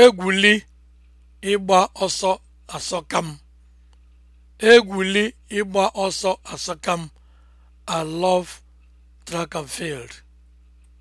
egwuli ịgba ọsọ asọka m egwuli ịgba ọsọ asọka m I love track and field